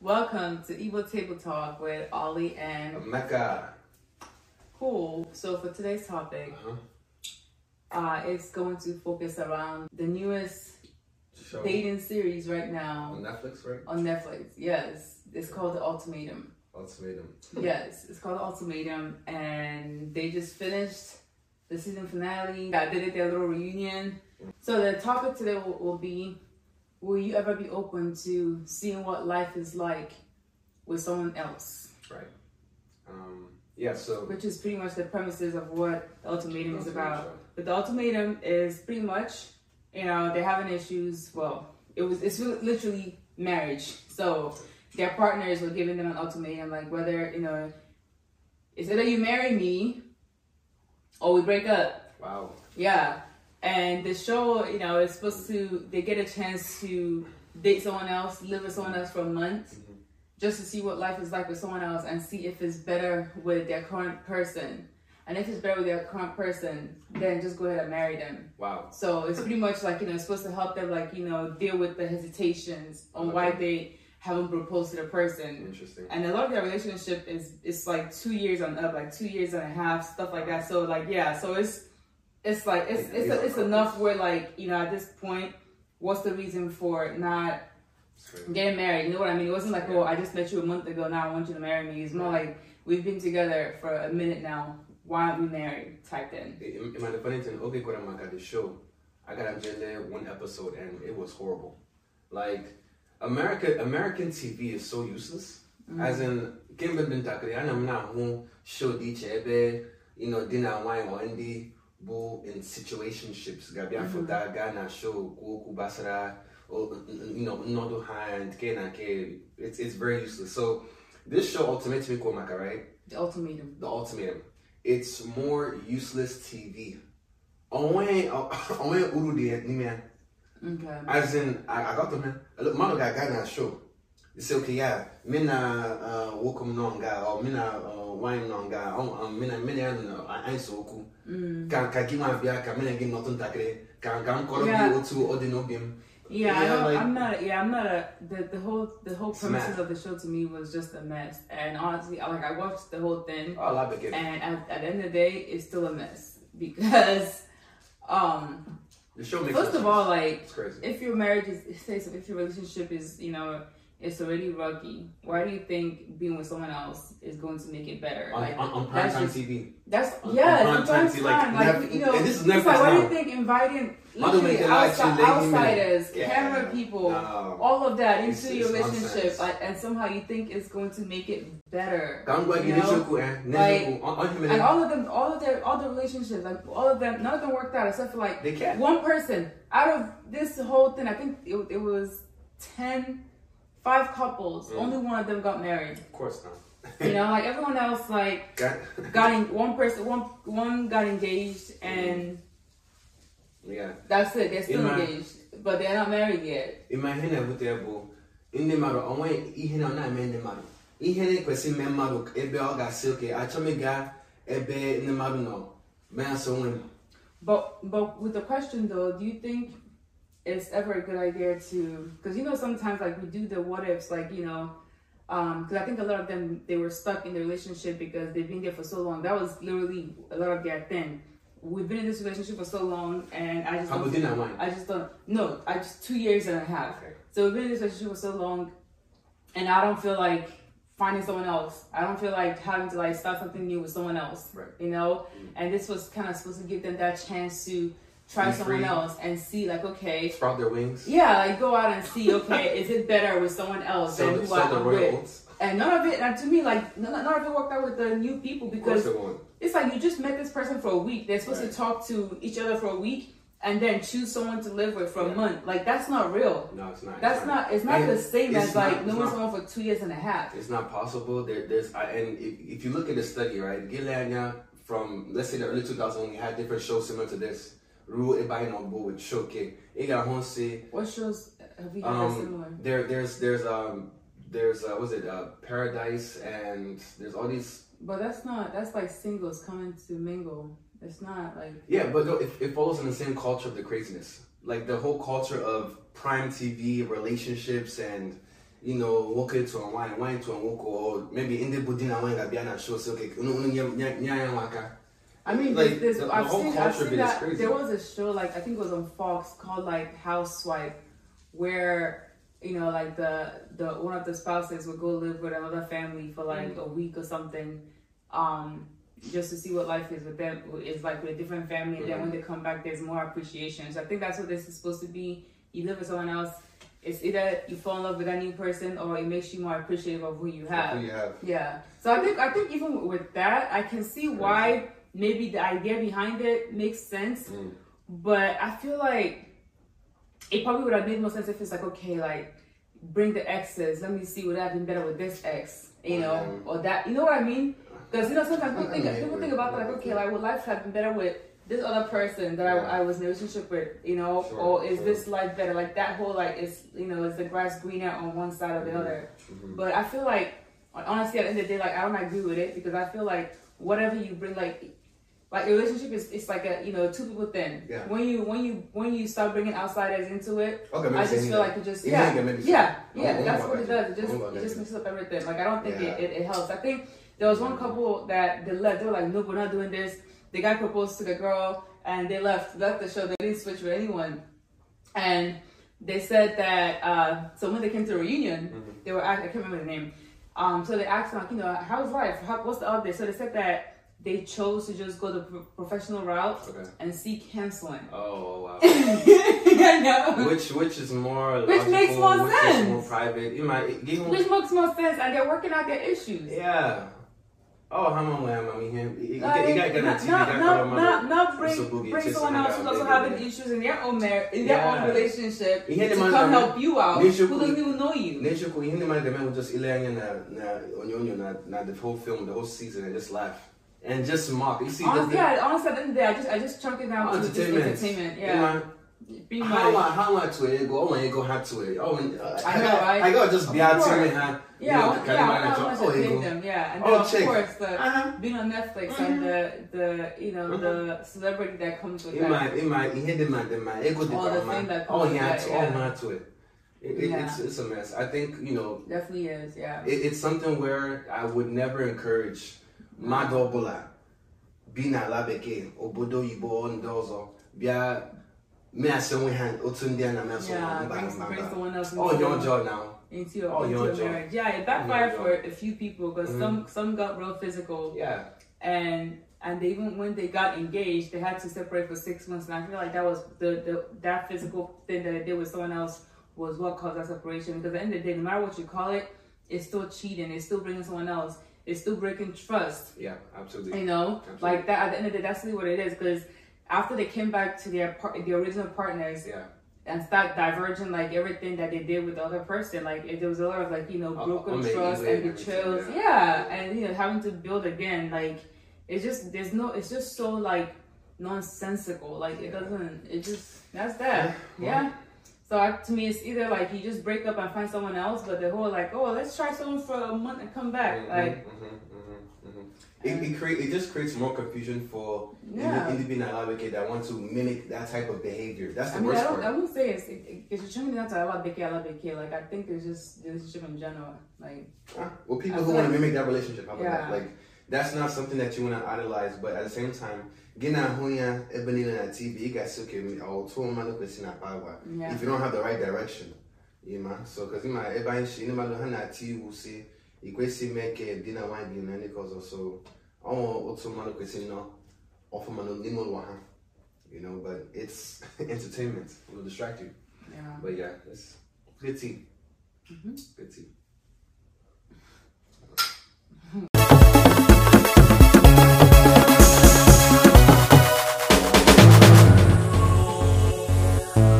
Welcome to Evil Table Talk with Ollie and Mecca. Cool. So for today's topic, uh-huh. uh, it's going to focus around the newest Show. dating series right now on Netflix, right? On Netflix, yes. It's called The Ultimatum. Ultimatum. yes, it's called The Ultimatum, and they just finished the season finale. I did it their little reunion. So the topic today will, will be, will you ever be open to seeing what life is like with someone else? Right. Um, yeah, so. Which is pretty much the premises of what the ultimatum is about. Sure. But the ultimatum is pretty much, you know, they're having issues. Well, it was, it's literally marriage. So their partners were giving them an ultimatum, like whether, you know, is it that you marry me or oh, we break up. Wow. Yeah. And the show, you know, is supposed to, they get a chance to date someone else, live with someone else for a month, mm-hmm. just to see what life is like with someone else and see if it's better with their current person. And if it's better with their current person, then just go ahead and marry them. Wow. So it's pretty much like, you know, it's supposed to help them, like, you know, deal with the hesitations on okay. why they haven't proposed to the person. Interesting. And a lot of their relationship is it's like two years and up, like two years and a half, stuff like that. So like yeah, so it's it's like it's it's, it's enough where like you know at this point, what's the reason for not getting married? You know what I mean? It wasn't like oh I just met you a month ago, now I want you to marry me. It's more like we've been together for a minute now. Why aren't we married? Type in. In my Pennington, okay, Guatemala got this show. I got a Jelle one episode and it was horrible. Like America American TV is so useless. Mm. As in kemgbe m dị ntakịrị m na-ahụ show dị iche ebe you know, di na nwaanyị ndị bụ in situationships ga-abịa mm-hmm. foto gaa na show kwuo okwu gbasara you know, nnọdụ ha nke na nke it's, it's very useless so this show ultimatum ikwo maka right the ultimatum the ultimatum it's more useless tv onwe uru dị n'ime ya Okay. As in, I, I got them, man. Look, mano guy, guy na show. He say, okay, yeah, me na uh, wokum nonga, or me na uh, wine nonga, or um, me na me na uh, ain't woku. Can mm. can give my beer, can me na give nothing takre, can can call me o two or the no beam. Yeah, yeah I don't, like, I'm not. Yeah, I'm not a. The, the whole the whole premise of the show to me was just a mess, and honestly, like I watched the whole thing. Oh, I love it. And at, at the end of the day, it's still a mess because, um, The show makes First of all, like, if your marriage is, if your relationship is, you know, it's already ruggy. Why do you think being with someone else is going to make it better? On, like, on, on prime time TV. That's on, yeah, on prime, prime TV, time. Like, like, like you know, and this is Netflix like, why do you think inviting literally outside, outsiders, yeah. camera people, all of that into it's, your it's relationship, like, and somehow you think it's going to make it better. You know? Eh? like, and all of them, all of their, all the relationships, like all of them, none of them worked out except for like they can. one person out of this whole thing. I think it, it was ten five couples, mm. only one of them got married. Of course not. you know, like everyone else, like got, got in, one person, one one got engaged, and mm. yeah, that's it. They're still Ima, engaged, but they're not married yet. Imagine ebute bụ ndị mmadụ onwe ihe na ọ na-eme ndị mmadụ ihe na-ekwesị ime mmadụ ebe ọ ga-asị oke achọ m ịga ebe ndị mmadụ nọ mee asọ nwe m. But but with the question though, do you think it's ever a good idea to because you know sometimes like we do the what ifs like you know because um, i think a lot of them they were stuck in the relationship because they've been there for so long that was literally a lot of their thing we've been in this relationship for so long and i just don't i just don't no i just two years and a half so we've been in this relationship for so long and i don't feel like finding someone else i don't feel like having to like start something new with someone else right. you know mm-hmm. and this was kind of supposed to give them that chance to try someone else and see like okay sprout their wings yeah like go out and see okay is it better with someone else sell than who i'm with and none of it and to me like none, none of it worked out with the new people because it it's like you just met this person for a week they're supposed right. to talk to each other for a week and then choose someone to live with for yeah. a month like that's not real no it's not that's it's not, not, it's not and the same as not, like knowing someone for two years and a half it's not possible there, there's I, and if, if, you look at the study right Gilania from let's say the early 2000s when had different shows similar to this ruo ebe anyị nọ bụ with Shoke ị ga-ahụ what shows have you um, one. there there's there's um there's uh, was it uh, Paradise and there's all these but that's not that's like singles coming to mingle it's not like yeah but no, it, it follows in the same culture of the craziness like the whole culture of prime TV relationships and you know, walk it to wine, wine to a walk, or maybe in the Budina wine, I'll be on a show. So, okay, I mean, like, there's, there's the, I've the seen, I've seen that there was a show like I think it was on Fox called like Housewife, where you know like the the one of the spouses would go live with another family for like mm-hmm. a week or something, um, just to see what life is with them is like with a different family. And then when they come back, there's more appreciation. So I think that's what this is supposed to be. You live with someone else. It's either you fall in love with a new person or it makes you more appreciative of who you have. Who you have. Yeah. So I think I think even with that, I can see why maybe the idea behind it makes sense, mm. but I feel like it probably would have made more sense if it's like, okay, like bring the exes. Let me see what i've been better with this ex, you know, mm. or that. You know what I mean? Because you know sometimes people think mm. people think about like, okay, like would life have been better with this other person that yeah. I, I, was in a relationship with, you know, sure, or is sure. this life better? Like that whole like is you know is the grass greener on one side or the mm-hmm. other? Mm-hmm. But I feel like honestly at the end of the day, like I don't agree with it because I feel like whatever you bring, like like a relationship is it's like a you know two people thing. Yeah. When you when you when you start bringing outsiders into it, okay, I just feel like it just yeah yeah yeah, yeah that's what it does. It just it just mixes up everything. Like I don't think yeah. it, it, it, helps. I think there was one couple that they left. They were like, no, we're not doing this. The guy proposed to the girl and they left left the show. They didn't switch with anyone, and they said that uh, so when they came to the reunion, mm-hmm. they were I can't remember the name. Um, so they asked like you know how's life? How, what's the update? So they said that they chose to just go the professional route okay. and seek counseling. Oh wow! I know. Which which is more which logical, makes more which sense. Is more private. You might even, which makes more sense, and they're working out their issues. Yeah. Oh, how long am I mean him? Like, you got to not, not, not, not, not bring, bring someone else who's also having issues in their own marriage, in their own relationship, to come help you out. Who doesn't even know you? Nature, you didn't mind the man who just ilanging na na onyonyo na na the whole film, the whole season, and just laugh. and just mock. You see, honestly, yeah. Honestly, at day, I just I just chunk it down to just entertainment. Yeah. be how my how my I go oh my go to it oh I know I, just be out to it yeah yeah I know how much oh, I them yeah and oh, then, of course the uh-huh. being on Netflix mm-hmm. and the the you know mm-hmm. the celebrity that comes with it that my in my he had in my all the thing that oh, comes oh he had to yeah. oh my Twitter it, it, yeah. it's, it's a mess I think you know definitely is yeah it's something where I would never encourage mmadụ ọbụla bi n'ala bekee obodo oyibo ndị ọzọ bịa measị onwe ha otu ndị a na-amasị onye ọjọọ na into your, oh, into your Yeah, it backfired mm-hmm. for a few people because mm-hmm. some some physical. And and they even when they got engaged, they had to separate for six months. And I feel like that was the, the that physical thing that I did with someone else was what caused that separation. Because at the end of the day, no matter what you call it, it's still cheating. It's still bringing someone else. it's still breaking trust. Yeah, absolutely. You know, absolutely. like that. At the end of the day, that's really what it is. Because after they came back to their par- the original partners, yeah. and start diverging like everything that they did with the other person, like if there was a lot of like you know broken uh, trust and betrayals, yeah. yeah, and you know having to build again, like it's just there's no, it's just so like nonsensical. Like it doesn't. It just that's that. Yeah. Well, So I, to me, it's either like you just break up and find someone else, but the whole like, oh, let's try someone for a month and come back, mm-hmm, like. Mm-hmm, mm-hmm, mm-hmm. it, it, create, it just creates more confusion for yeah. independent advocate that want to mimic that type of behavior. That's the I mean, worst I part. I wouldn't say it's it, it's determined not to alabeke alabeke. Like I think it's just the relationship in general. Like ah, well, people who want to like, mimic that relationship, how about yeah. that? Like that's not something that you want to idolize, but at the same time, gina hunya ebelina na TV, guys, okay, or oh, two man look na power. If you don't have the right direction, you know. So, because in my ebelina she in my lohana TV, see, ikwesi make dina na dina because also, oh, two man look no, offer man limo waha, you know. But it's entertainment; it will distract But yeah, it's pretty, mm pretty.